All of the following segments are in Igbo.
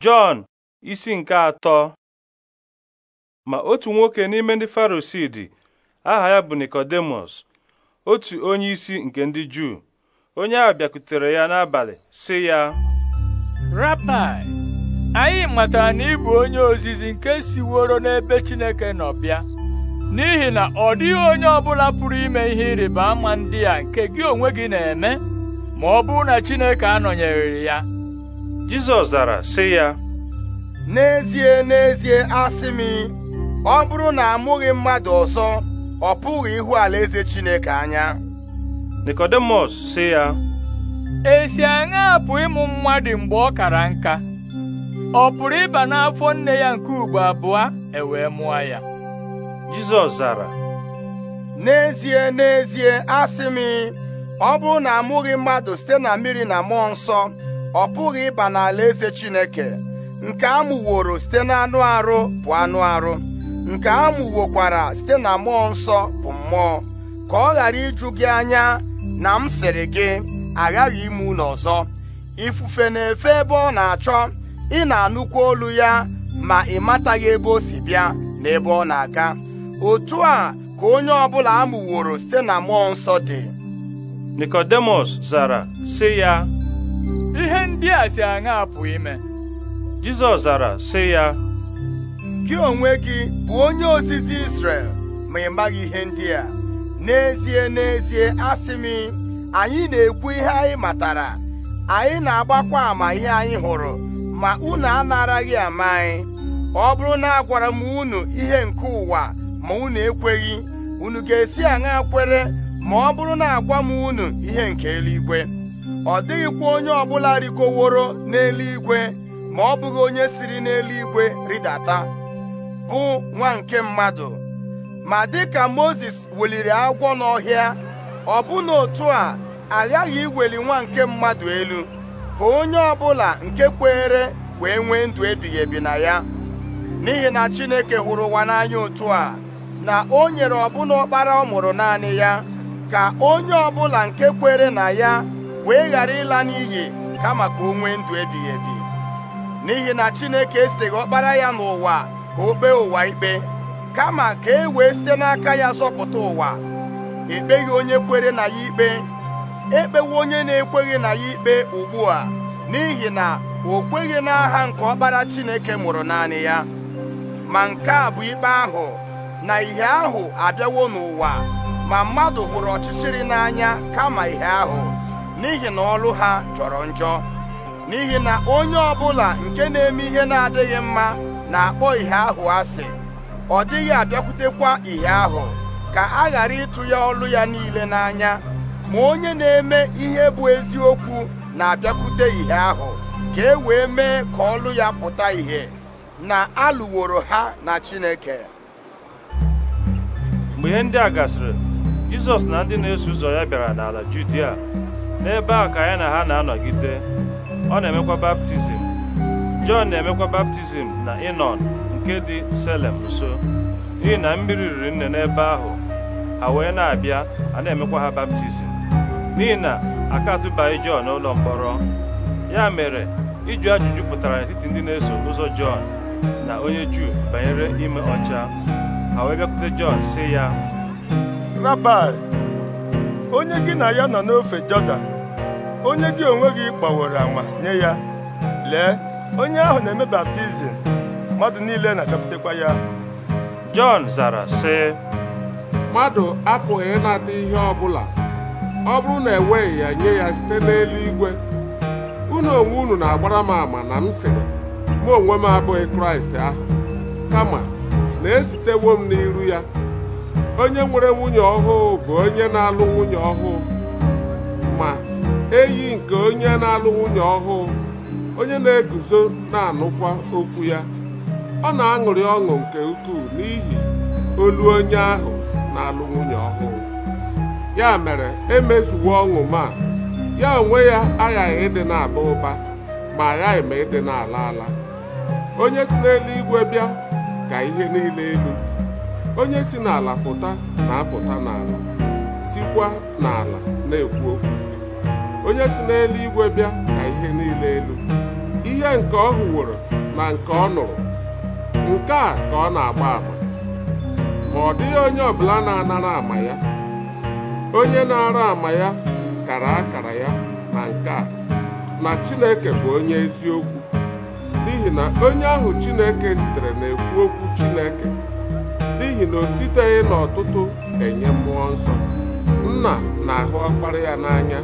Jọn isi nke atọ ma otu nwoke n'ime ndị Farisii aha ya bụ nikodemus otu onyeisi nke ndị Juu onye ahụ bịakwutere ya n'abalị sị ya Rabai anyị matara na ịbụ onye ozizi nke siworo n'ebe Chineke nọ bịa n'ihi na ọ dịghị onye ọbụla pụrụ ime ihe ịrịba ama ndị a nke gị onwe gị na-eme ma ọ bụrụ na Chineke anọnyere ya Jizọs zara sị ya n'ezie n'ezie asị m ọ bụrụ na amụghị mmadụ ọzọ ọ pụghị ihu alaeze Chineke anya Nikọdimọs sị ya esi aṅa pụ ịmụ mmadụ mgbe ọ kara nka ọ pụrụ ịba n'afọ nne ya nke ugbo abụọ e wee mụọ ya Jizọs zara n'ezie n'ezie asị m ọ bụrụ na amụghị mmadụ site na mmiri na mmụọ nsọ ọ pụghị ịba n'ala eze Chineke nke amụworo site n'anụ arụ bụ anụ arụ nke amụwokwara site na mmụọ nsọ bụ mmụọ ka ọ ghara iju gị anya na m sịrị gị aghaghị ime unu ọzọ ifufe na-efe ebe ọ na-achọ ị na anụkwu olu ya ma ị mataghị ebe o si bịa na ebe ọ na-aga otu a ka onye ọbụla amụworo site na mmụọ nsọ dị Nikodemus zara sị ya ndị a si aṅa apụ ime Jizọs zara sị ya gị onwe gị bụ onye ozizi Israel ma ị maghị ihe ndị a n'ezie n'ezie asị m anyị na-ekwu ihe anyị matara anyị na-agbakwa ama ihe anyị hụrụ ma unu anaraghị ama anyị ọ bụrụ na agwara m unu ihe nke ụwa ma unu ekweghị unu ga-esi aṅa kwere ma ọ bụrụ na agwa m unu ihe nke eluigwe ọ dịghịkwa onye ọbụla rikoworo n'eluigwe ma ọ bụghị onye siri n'eluigwe rịdata bụ nwa nke mmadụ ma dịka Mozis weliri agwọ n'ọhịa ọbụna otu a aghaghị iweli nwa nke mmadụ elu ka onye ọbụla nke kweere wee nwee ndụ ebighị ebi na ya n'ihi na Chineke hụrụ ụwa n'anya otu a na o nyere ọbụna ọkpara ọ mụrụ naanị ya ka onye ọbụla nke kwere na ya wee ghara ịla n'iyi kama ka o nwee ndụ ebighị ebi n'ihi na Chineke esighị ọkpara ya n'ụwa ka o kpee ụwa ikpe kama ka e wee site n'aka ya zọpụta ụwa ekpeghị onye kwere na ya ikpe ekpewo onye na-ekweghị na ya ikpe ugbu a n'ihi na o kweghị n'aha nke ọkpara Chineke mụrụ naanị ya ma nke a bụ ikpe ahụ na ihe ahụ abịawo n'ụwa ma mmadụ hụrụ ọchịchịrị n'anya kama ihe ahụ n'ihi na ọlụ ha jọrọ njọ n'ihi na onye ọbụla nke na-eme ihe na-adịghị mma na-akpọ ihe ahụ asị ọ dịghị abịakwutekwa ihe ahụ ka a ghara ịtụ ya ọlụ ya niile n'anya ma onye na-eme ihe bụ eziokwu na-abịakwute ihe ahụ ka e wee mee ka ọlụ ya pụta ìhè na alụworo ha na Chineke mgbe ihe ndị a gasịrị Jizọs na ndị na-eso ụzọ ya bịara n'ala Judia n'ebe a ka ya na ha na-anọgide ọ na-emekwa baptizim Jọn na-emekwa baptizim na ịnọ nke dị Selem nso n'ihi na mmiri riri nne n'ebe ahụ ha wee na-abịa a na-emekwa ha baptizim n'ihi na aka atụbaghị Jọn n'ụlọ mkpọrọ ya mere ịjụ ajụjụ pụtara n'etiti ndị na-eso ụzọ Jọn na onye Juu banyere ime ọcha ha wee bịakwute Jọn sị ya onye gị na ya nọ n'ofe Jọdan onye gị onwe gị gbaworo anwa nye ya lee onye ahụ na-eme baptizim mmadụ niile na-agapụtakwa ya Jọn zara sị mmadụ apụghị ịnata ihe ọ bụla ọ bụrụ na enweghị ya nye ya site n'eluigwe unu onwe unu na-agbara m ama na m sịrị mụ onwe m abụghị Kraịst ahụ kama na-esitewo m n'iru ya onye nwere nwunye ọhụụ bụ onye na-alụ nwunye ọhụụ ma eyi nke onye na-alụ nwunye ọhụụ onye na-eguzo na-anụkwa okwu ya ọ na-aṅụrị ọṅụ nke ukwuu n'ihi olu onye ahụ na-alụ nwunye ọhụụ ya mere emezuwo ọṅụ ma ya onwe ya aghaghị ịdị na-aba ụba ma aghaghị ma ịdị na-ala ala onye si n'eluigwe bịa ka ihe niile elu onye si n'ala pụta na-apụta n'ala sikwa n'ala na-ekwu okwu onye si n'elu igwe bịa ka ihe niile elu ihe nke ọ hụworo na nke ọ nụrụ nke a ka ọ na-agba ama ma ọ dịghị onye ọbụla na-anara ama ya onye na-ara ama ya kara akara ya na nke a na Chineke bụ onye eziokwu n'ihi na onye ahụ Chineke zitere na-ekwu okwu Chineke n'ihi na o siteghị n'ọtụtụ enye mmụọ nna na-ahụ ọkpara ya n'anya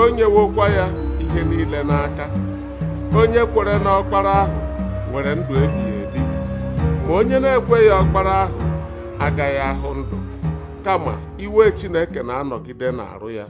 o nyewokwa ya ihe niile n'aka onye kwere na ọkpara ahụ nwere ndụ ebighị ebi ma onye na-ekweghị ọkpara ahụ agaghị ahụ ndụ kama iwe Chineke na-anọgide n'arụ ya